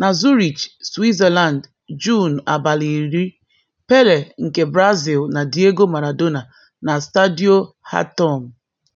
Na Zurich, Switzerland, Juun abalị iri, Pele nke Brazil na Diego Maradona na Stadio Hatom.